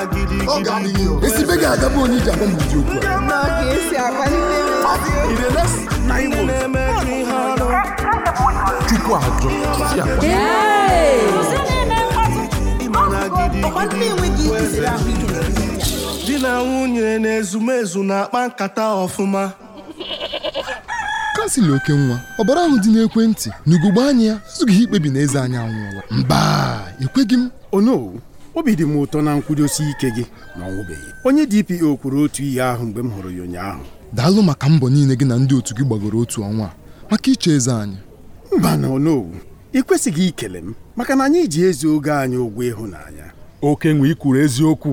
Ọ ga-aga bụ onye iji agwa m ihe ọrụ, chukwu ajọ di na nwunye na ezumezu na-akpa nkata ọfụma kasịla oke nwa ọbara ahụ dị n'ekwentị n'ugogbe anya ya ezughị ikpebi na eze anyị anwụọla mba ekweghị m ono oh obi dị m ụtọ na nkwudosi ike gị na ọnwụbeghị onye DPO kwuru otu ihe ahụ mgbe m hụrụ ya ụnyaahụ daalụ maka mbọ niile gị na ndị otu gị gbagoro otu ọnwa maka iche eze anyị mba na onowu ị kwesịghị ikele m maka na anyị ji ezi oge anyị ụgwọ ịhụnanya oke nwe ikwuru eziokwu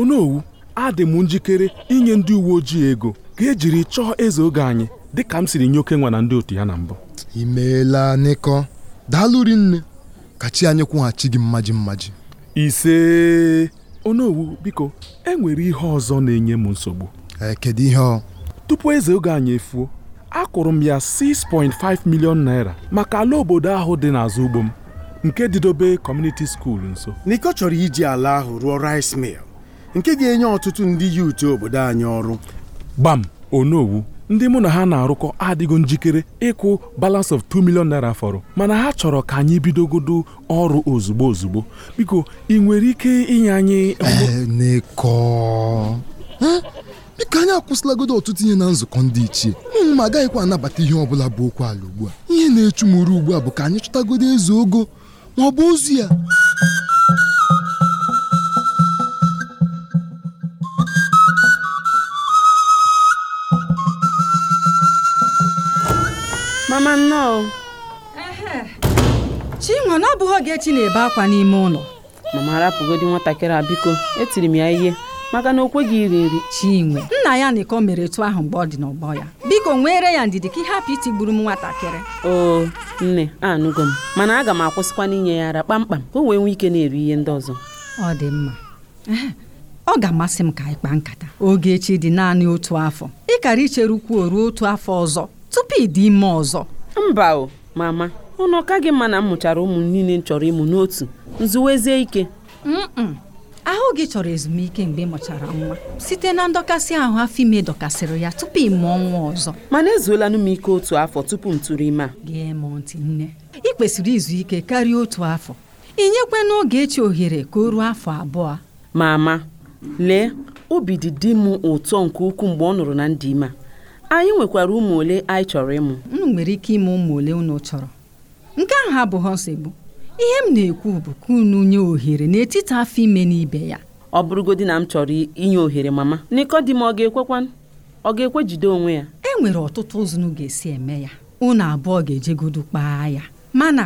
onowu adị m njikere inye ndị uwe ojii ego ka ejiri chọọ eze oge anyị dị ka m siri nye oke nwa na ndị otu ya na mbụ imeela nịkọ daalụ rinne ka chi anyị kwụghachi gị mmaji mmaji ise onowu biko enwere ihe ọzọ na-enye m nsogbu e, kedu ihe ọ tupu eze oge anyị efuo akụrụ m ya 6.5 million naira maka ala obodo ahụ dị n'azụ ugbo m nke Didobe kọmuniti skuul nso n'iko chọrọ iji ala ahụ rụọ rice mil nke ga-enye ọtụtụ ndị yuutu obodo anyị ọrụ gbam onowu ndị mụ na ha na-arụkọ adịgo njikere ịkwụ balance of 2 million naira fọrọ mana ha chọrọ ka anyị bidogodo ọrụ ozugbo ozugbo biko ị nwere ike inye anyị biko eh, anyị akwụsịlagodo ọtụtụ ihe na nzukọ ndị ichie ma agaghịkwa anabata ihe ọbụla bụ okwu ala ugbu a ihe na-echu m ugbu a bụ ka anyị chọtagodo eze ogo ma ọ bụ ozu ya ma na ọ bụghị Ogechi na-ebe akwa n'ime ụlọ mama arapụgodi nwatakịrị a biko etiri m ya ihe maka na o kweghị iri nri Chinwe nna ya nịkọ mere etu ahụ mgbe ọ dị n'ọgbọ ya biko nwere ya ndidi ka ị hapụ gburu m nwatakịrị oo nne anụgo m mana aga m akwụsịkwa n'inye ya ara kpamkpam ka o wee nwee ike na-eri ihe ndị ọzọ ọ dị mma ọ ga-amasị m ka anyị kpaa nkata Ogechi dị naanị otu afọ ịkara ichere ukwu ruo otu afọ ọzọ tupu ịdị ime ọzọ mba o mama ụnụ ọ gị mma na m mụchara ụmụ niile m chọrọ ịmụ n'otu nzuwezie ike ahụ gị chọrọ ezumike mgbe ị mụchara nwa site na ndọkasị ahụ afọ ime dọkasịrị ya tupu ịmụ ọnwa nwa ọzọ mana ezuola m ike otu afọ tupu m tụrụ ime a gee m ntị nne ị kwesịrị izu ike karịa otu afọ ị nyekwa n'oge echi ohere ka o ruo afọ abụọ mama lee obi dị di m ụtọ nke ukwuu mgbe ọ nụrụ na ndị ime anyị nwekwara ụmụ ole anyị chọrọ ịmụ m nwere ike ime ụmụ ole unu chọrọ nke ahụ abụghị nsogbu ihe m na-ekwu bụ ka unu nye ohere n'etiti afọ ime na ibe ya ọ bụrụgodị na m chọrọ inye ohere mama m ọ ga-ekwekwa ọ ga-ekwe jide onwe ya e nwere ọtụtụ ụzọ ga-esi eme ya unu abụọ ga-ejegodu kpaa ya mana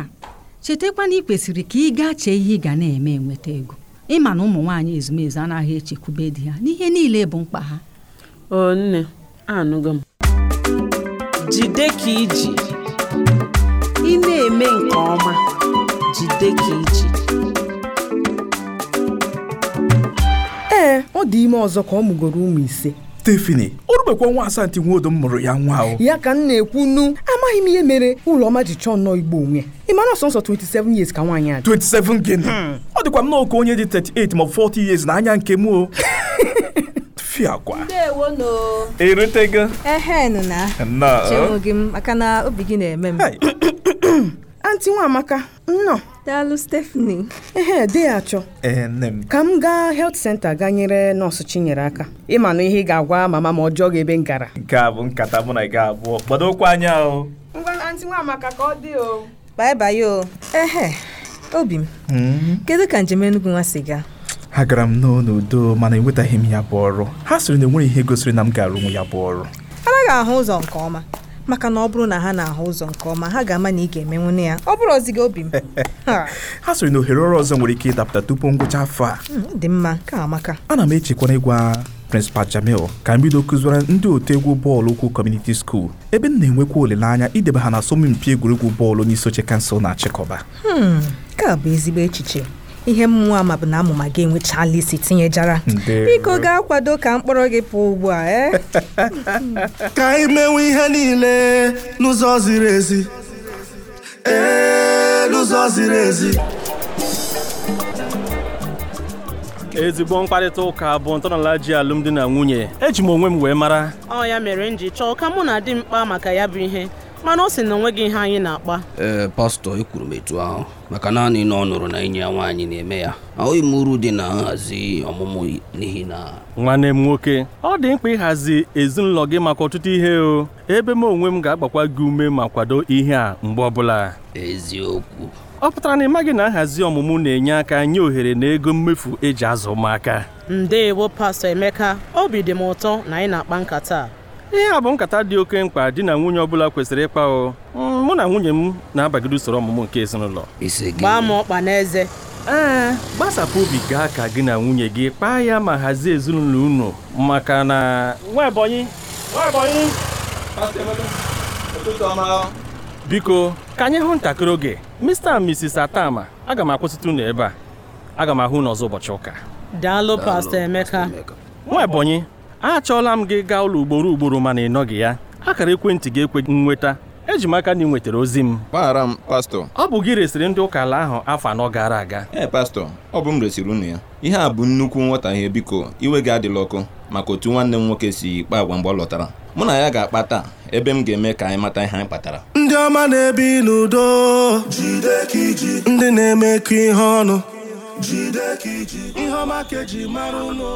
chetakwa na ị kwesịrị ka ị gaa chee ihe ị ga na-eme enweta ego ịma na ụmụ nwaanyị ezumezu anaghị echekwube di ha n'ihe niile bụ mkpa ha o nne anụgo m jide ka iji ị na-eme nke ọma jide ka iji ee ọ dị ime ọzọ ka ọ mụgoro ụmụ ise Stephanie o nwa asantị nwodo m mụrụ ya nwa ahụ. ya ka m na-ekwu nu amaghị m ihe mere ụlọma ji chọọ nnọọ igbo onwe ị mara ọsọ nsọ 27 years ka nwaanyị a 27 gịnị hmm. ọ dịkwa m n'oke onye dị 38 ma 40 years na anya nke m o fiakwa irutego ehenụ na chenwụ eh? gị maka na obi gị na-eme m anti Nwamaka nnọ. daalụ stefani. ehe dị ya achọ eh, ka m gaa health center gaa nyere nọọsụ Chinyere aka ịma na ihe ị ga-agwa mama ma ọjọọ gị ebe m gara nke a bụ nkata mụ na gị abụọ gbado okwu anya ahụ. ngwa anti Nwamaka ka ọ dị o bye ehe obi m hmm? kedu ka njem Enugu nwa si gaa ha gara m n'udo mana enwetaghị m ya bụ ọrụ ha sịrị na enweghị ihe gosiri na m gara onwe ya bụ ọrụ anaghị ahụ ụzọ nke ọma maka na ọ bụrụ na ha na-ahụ ụzọ nke ọma ha ga-ama na ị ga-emenwune eme ya ọ bụrụ ọzi gị obi m ha sịrị na ohere ọrụ ọzọ nwere ike ịdapụta tupu ngwụcha afọ a hmm, dị mma ka amaka ana m echekwana ịgwa prịnsịpal Jamil ka m bido kụziwara ndị otu egwu bọọlụ ụkwụ kọmuniti skuul ebe m na-enwekwa olileanya ideba ha na asọmpi egwuregwu bọọlụ n'isoche kansụl na-achịkọba hmm, nke bụ ezigbo echiche ihe mmụọ ma bụ na amụma gị enwechala isi tinyejara biko gaa kwado ka mkpọrọ gị pụọ ugbu a e ka anyị mewe ihe niile n'ụzọ ziri ezi n'ụzọ ziri ezi ezigbo mkparịta ụka bụ ntọala ji alụmdi na nwunye eji m onwe m wee mara ọ ya mere m ji chọọ ka mụ na di m maka ya bụ ihe mana ọ sị na onweghị ihe anyị na-akpa ee pastọ ekwuru m etu ahụ maka naanị na ọ nụrụ na enyi ya nwaanyị na-eme ya ahụghị m uru dị na nhazi ọmụmụ n'ihi na nwanne m nwoke ọ dị mkpa ịhazi ezinụlọ gị maka ọtụtụ ihe o ebe m onwe m ga-agbakwa gị ume ma kwado ihe a mgbe ọbụla eziokwu ọ pụtara na ịmaghị na nhazi ọmụmụ na-enye aka nye ohere na ego mmefu eji azụ ụmụaka ndeewo pastọ Emeka obi dị m ụtọ na anyị na-akpa nkata ihe a bụ nkata dị oke mkpa di na nwunye ọbụla kwesịrị ịkpa o hmm, mụ na nwunye m na-abagide usoro ọmụmụ nke ezinụlọ gbaa m ọkpa n'eze ee gbasapụ obi gaa ka gị na nwunye gị kpaa ya ma hazie ezinụlọ unu maka na nwa Ebonyi nwa Ebonyi biko ka anyị hụ ntakịrị oge Mr and Mrs Atama aga m akwụsịtụ unu ebe a aga m ahụ n'ọzọ ọzọ ụbọchị ụka daalụ Pastor Emeka nwa Ebonyi achọọla m gị gaa ụlọ ugboro ugboro mana ị nọghị ya akara ekwentị gị ekwe nnweta eji m aka na ị nwetara ozi m gbaghara m pastọ ọ bụ gị resịrị ndị ụka ala ahụ afọ anọ gara aga ee pastọ ọ bụ m resịrị unu ya ihe a bụ nnukwu nghọtahie biko iwe gị adịla ọkụ maka otu nwanne m nwoke si kpa agwa mgbe ọ lọtara mụ na ya ga-akpa taa ebe m ga-eme ka anyị mata ihe anyị kpatara ndị ọma na-ebi n'udo ndị na-emekọ ihe ọnụ ihe ọma ka eji mara ụlọ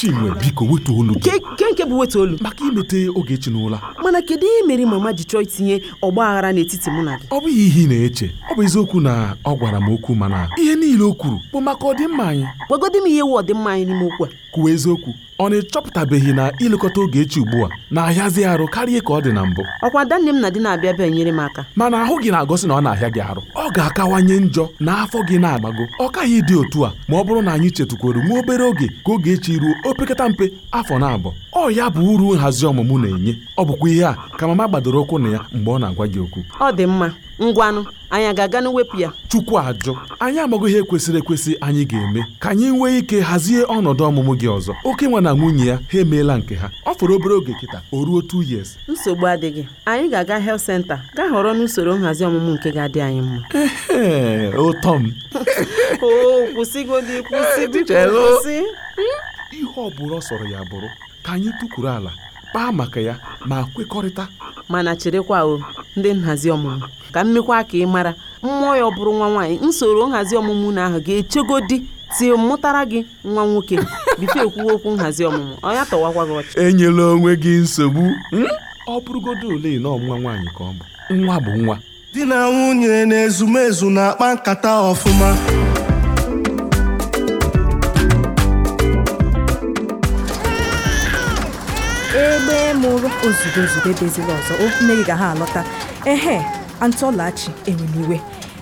chinwe biko wetu olu gị nke nke bụ wetu olu maka imete oge n'ụla mana kedu ihe mere mama ji chọọ itinye ọgba aghara n'etiti mụ na gị ọ bụghị ihe ị na-eche ọ bụ eziokwu na ọ gwara m okwu mana ihe niile o kwuru bụ maka ọdịmma anyị gwagodi m ihe wu ọdịmma anyị n'ime okwu a kwuwa eziokwu ọ na-echọpụtabeghị na ilekọta Ogechi ugbu a na-ahịazi arụ karịa ka ọ dị na mbụ ọkwa ada nne m na di na-abịa bịa nyere m aka mana ahụ gị na-agosi na ọ na-ahịa gị arụ ọ ga-akawanye njọ na afọ gị na-agbago ọ kaghị dị otu a ma ọ bụrụ na anyị chetukwuru nwa obere oge ka oge echi ruo opekata mpe afọ na-abụ ọ ya bụ uru nhazi ọmụmụ na-enye ọ bụkwa ihe a ka mama gbadoro ụkwụ na ya mgbe ọ na-agwa gị okwu ọ dị mma ngwanụ anyị ga-aga n'wepụ ya chukwu ajụ anyị amaghị ihe kwesịrị ekwesị anyị ga-eme ka anyị nwee ike hazie ọnọdụ ọmụmụ gị ọzọ oke nwa na nwunye ya ha emeela nke ha ọ fọrọ obere oge kịta o ruo 2 years nsogbu adịghị anyị ga-aga health center gaa họrọ n'usoro nhazi ọmụmụ nke ga-adị anyị mma ụtọ m kwụsị ihe ọ sọrọ ya bụrụ ka anyị tụkwuru ala kpaa maka ya ma kwekọrịta mana cherekwa o ndị nhazi ọmụmụ ka mmekwa ka ị mara mmụọ ya ọ bụrụ nwa nwaanyị nsoro nhazi ọmụmụ na ahụ ga di tie mụtara gị nwa nwoke bife ekwuwe okwu nhazi ọmụmụ ọnya tọwakwa gị ọchị enyela onwe gị nsogbu hmm? ọ bụrụgodo ole na ọnwa nwaanyị ka ọ bụ nwa bụ nwa di na nwunye na ezumezu na-akpa nkata ọfụma m ụrụ ozugbo ozugbo deziri ọzọ okwu ga ha alọta ehe antọlachi enwemiwe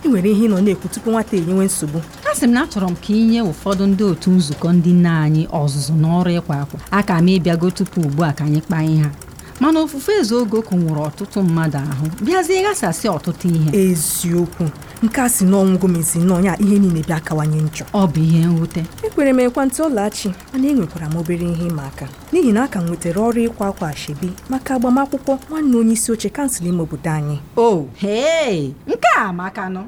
ị nwere ihe ị nọ na-ekwu tupu nwata enyewe nsogbu a sị m na achọrọ m ka ị nye ụfọdụ ndị otu nzukọ ndị nne anyị ọzụzụ n'ọrụ ịkwa akwa a ka m ịbịago tupu ugbu a ka anyị kpaa ihe ha mana ofufe eze oge nwụrụ ọtụtụ mmadụ ahụ bịazie ghasasị ọtụtụ ihe eziokwu nke a si n'ọnwụ gomesi n'ọnya ihe niile bịa akawanye njọ ọ bụ ihe nwute ekwere m ekwentị ọlachi mana enwekwara m obere ihe ịma aka n'ihi na a ka m nwetara ọrụ ịkwa akwa ashebi maka agbamakwụkwọ nwanne onye isi oche kansụl ime obodo anyị o oh, nke a nọ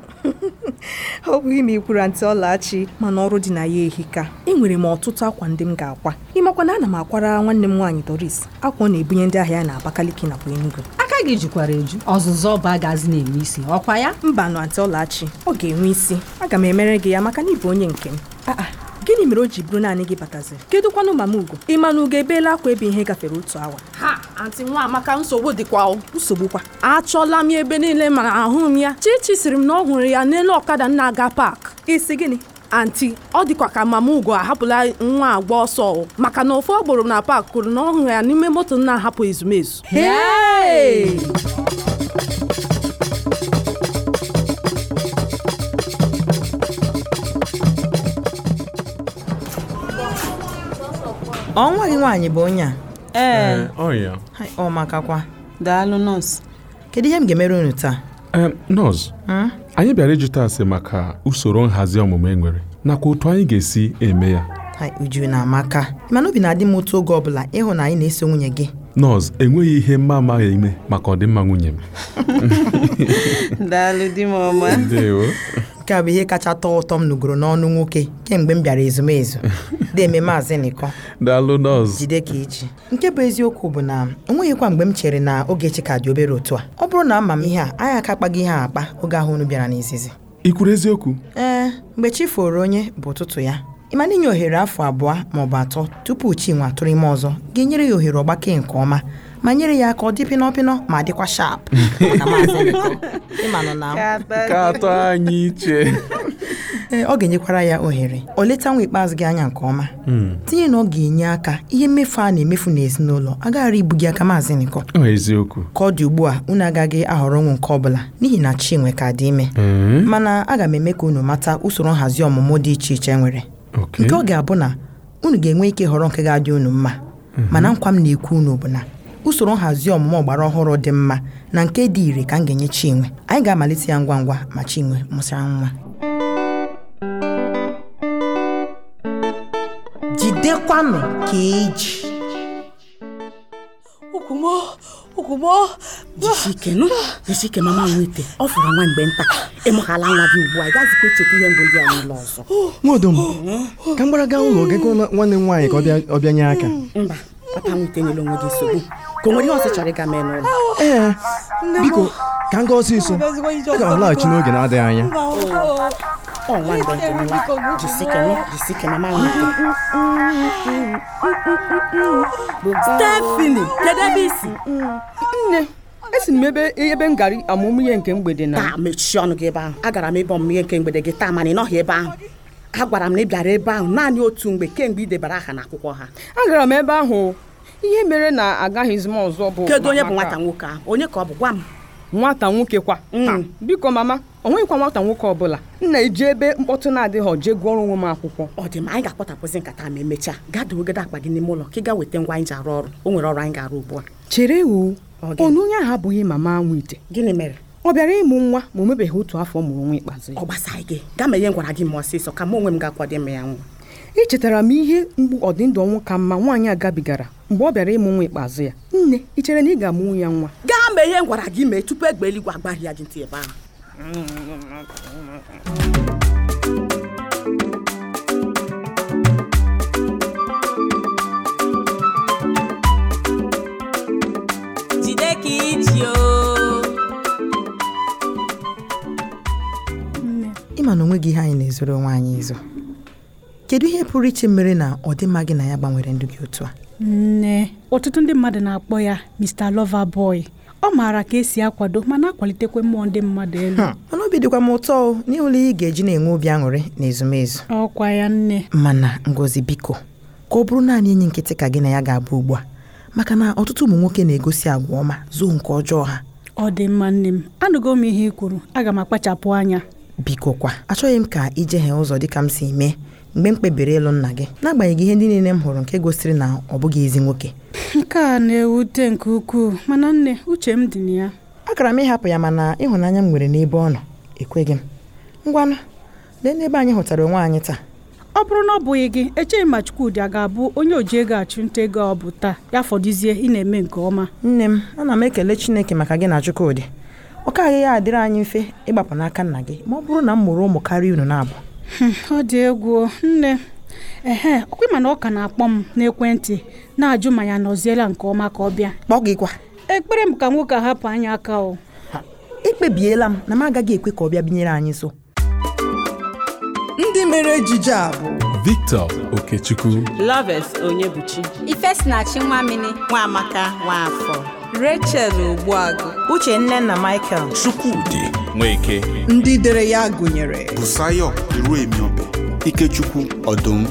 ọ bụghị ma ị kwuru antị ọlachi mana ọrụ dị na ya ehika enwere m ọtụtụ akwa ndị m ga-akwa ịmakwa na ana m akwara nwanne m nwaanyị Doris akwa ọ na-ebunye ndị ahịa ya na Abakaliki nakwa Enugu aka gị jikwara eju ọzụzụ ọba agazi na-enwe isi ọkwa ya mba nụ antị ọlachi ọ ga-enwe isi aga m emere gị ya maka na ịbụ onye nke m ah, ah. gịnị mere o ji bụrụ naanị gị bataziri kedụkwanụ mama ugo ịmanụ ugo ebeela akwa ebe ihe gafere otu awa ha antị nwa amaka nsogbu dịkwa nsogbu kwa achọla m ebe niile mana ahụ m ya chichi siri m na ọ hụrụ ya n'elu ọkada na-aga paak isi gịnị anti ọ dịkwa ka mama ugo ahapụla nwa agba ọsọ maka na ọ agboro na paak kwuru na ọ hụrụ ya n'ime moto na-ahapụ ezumezu ọnwa gị nwaanyị bụ onye a ee eh, oh, ọ makakwa daalụ nọọsụ kedu ihe m ga-emere unu taa eh, nọọsụ anyị bịara ịjụta ase maka usoro nhazi ọmụmụ e nwere nakwa otu anyị ga-esi eme ya uju na amaka mana obi na-adị m otu oge ọbụla ịhụ na anyị na-eso nwunye gị nọọsụ enweghị ihe mma amaghị ime maka ọdịmma nwunye m daalụ di m ọma nke a bụ ihe kacha tọọ ụtọ m nụgoro n'ọnụ nwoke kemgbe m bịara ezumezu deme maazị nịkọ daalụ nọọsụ jide ka iji nke bụ eziokwu bụ na nweghịkwa mgbe m chere na Ogechi ka dị obere otu a ọ bụrụ na ama m ihe a anyị aka akpaghị ihe a akpa oge ahụ unu bịara n'izizi ị kwuru eziokwu ee mgbe chi foro onye bụ ụtụtụ ya ịmana n'inye ohere afọ abụọ maọbụ atọ tupu chi nwa atụrụ ime ọzọ ga-enyere ya ohere ọgbake nke ọma ma nyere ya aka ọ dị pịnọpịnọ ma dịkwa shap ka anyị iche ee ọ ga-enyekwara ya ohere o leta nwa ikpeazụ gị anya nke ọma hmm. tinye na ọ ga-enye aka ihe mmefu a na-emefu n'ezinụlọ agaghara ibu gị aka maazị nịkọ eziokwu ka ọ dị ugbu a unu agaghị ahọrọ ọnwụ nke ọbụla n'ihi na chinwe ka dị ime hmm. mana aga m eme ka unu mata usoro nhazi ọmụmụ dị iche iche nwere nke ọ ga-abụ na unu ga-enwe ike họrọ nke ga-adị unu mma hmm. mana nkwa m na-ekwu unu bụ na usoro nhazi ọmụmụ ọgbara ọhụrụ dị mma na nke dị ire ka m ga-enye Chinwe anyị ga-amalite ya ngwa ngwa ma Chinwe mụsara nwa jidekwanụ ka eji jisike mama nwete ọ fụrụ nwa mgbe nta ịmụhala nwa gị ugbu a ị gazikwa echekwa ihe mbụ ndị a n'ụlọ ọzọ nwadom ka m gbara gaa ụlọ gị nwanne m nwaanyị ka ọ bịa bịanye aka mba papa nwete nyere onwe gị nsogbu ka o nwere ihe ọsị ịga mee n'ụlọ ee biko ka m gaa ọsịsọ aga m alaghachi n'oge na-adịghị anya Stefani kedu ebe isi nne esi m ebe ebe m gara amụmụ ihe nke mgbede na taa mechie ọnụ gị ebe ahụ agara m ịbọ ọmụmụ ihe nke mgbede gị taa mana ị nọghị ebe ahụ agwara m na ị bịara ebe ahụ naanị otu mgbe kemgbe ị debara aha n'akwụkwọ ha agara m ebe ahụ ihe mere na agaghịzi m ọzọ bụ kedu onye bụ nwata nwoke ahụ onye ka ọ bụ gwa m nwata nwoke kwa mm. biko mama o nweghịkwa nwata nwoke ọbụla nna eji ebe mkpọtụ na-adịghị ọje gụọrọ onwe m akwụkwọ ọ dị ma anyị ga-akpọtapụzi nkata ma emechaa gaa dowegode akpa gị n'ime ụlọ ka ị gaa weta ngwa anyị ji arụ ọrụ o nwere ọrụ anyị ga-arụ ugbu a chere wu onu onye ahụ abụghị mama nwe ite gịnị mere ọ bịara ịmụ nwa ma omebeghị otu afọ mụrụ nwa ikpeazụ ọ gị gaa ihe gwara gị ma ọsịsọ ka m onwe m ga-akwado ime ya nwa echetara m ihe mgbu ọdịndụ ọnwụ ka mma nwaanyị a gabigara mgbe ọ bịara ịmụ nwa ikpeazụ ya nne ị chere na ị ga-amụnwu ya nwa gaa mee ihe m gwara gị mee tupu egbe eluigwe agbaghị ya gị ntị ebe ahụ ịma na onwe gị ihe anyị na-ezoro nwaanyị izo kedu ihe pụrụ iche mere na ọdịmma gị na ya gbanwere ndụ gị otu a nne ọtụtụ ndị mmadụ na-akpọ ya Mr boy ọ maara ka esi akwado mana akwalitekwe mmụọ ndị mmadụ elu hmm. mana obi dịkwa m ụtọ o n'ụlọ ị ga-eji na-enwe obi aṅụrị na ezumezu ọkwa ya nne mana Ngozi biko ka ọ bụrụ naanị enyi nkịtị ka gị na ya ga-abụ ugbu a maka na ọtụtụ ụmụ nwoke na-egosi agwa ọma zoo nke ọjọọ ha ọ dị mma nne m anụgo m ihe ị kwuru aga m akpachapụ anya biko kwa achọghị m ka ijehee ụzọ dịka m si mee mgbe m kpebiri ịlụ nna gị n'agbanyeghị ihe ndị niile m hụrụ nke gosiri na ọ bụghị ezi nwoke nke a na-ewute nke ukwuu mana nne uche m dị na ya agara m ịhapụ ya mana ịhụnanya m nwere n'ebe ọ nọ ekweghị m ngwanụ lee n'ebe anyị hụtara onwe anyị taa ọ bụrụ na ọ bụghị gị echeghị ma Chukwudi a ga-abụ onye oji ego achụnta ego ọ bụ taa ya fọdụzie ị na-eme nke ọma nne m ana m ekele Chineke maka gị na Chukwudi ọ ka gaghị adịrị anyị mfe ịgbapụ n'aka nna gị ma ọ bụrụ na m mụrụ ụmụ karịa unu na-abụ ọ dị egwu nne ehe ọkwa ịma na ọ ka na-akpọ m n'ekwentị na-ajụ ma ya nọziela nke ọma ka ọ bịa kpọ gị ekpere m ka nwoke a hapụ anya aka o ekpebiela m na m agaghị ekwe ka ọ bịa binyere anyị so. ndị mere ejije a bụ Victor Okechukwu Loves Onyebuchi Ifesinachi Nwamini Nwaamaka Nwaafọ Rachel uche nne na Michael Chukwudị Nweke ndị dere ya gụnyere Busayo Iruemiobe Ikechukwu Ọdụm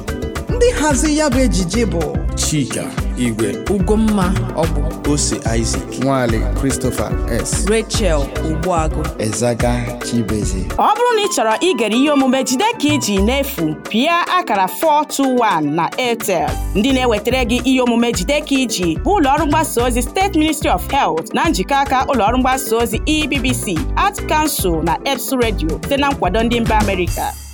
ndị hazi ya bụ ejije bụ Chika Igwe Ugomma Ọbụ Ose Isaac Nwaale Christopher S Rachel Ogbuagụ Ezaga Chibeze ọ bụrụ na ị chọrọ igere ihe omume jide ka iji n'efu pịa akara 421 na Airtel ndị na-ewetara gị ihe omume jide ka iji bụ ụlọọrụ mgbasa ozi steeti Ministry of Health na njikọ aka ụlọọrụ mgbasa ozi EBBC Art Council na EBS redio site na nkwado ndị mba Amerịka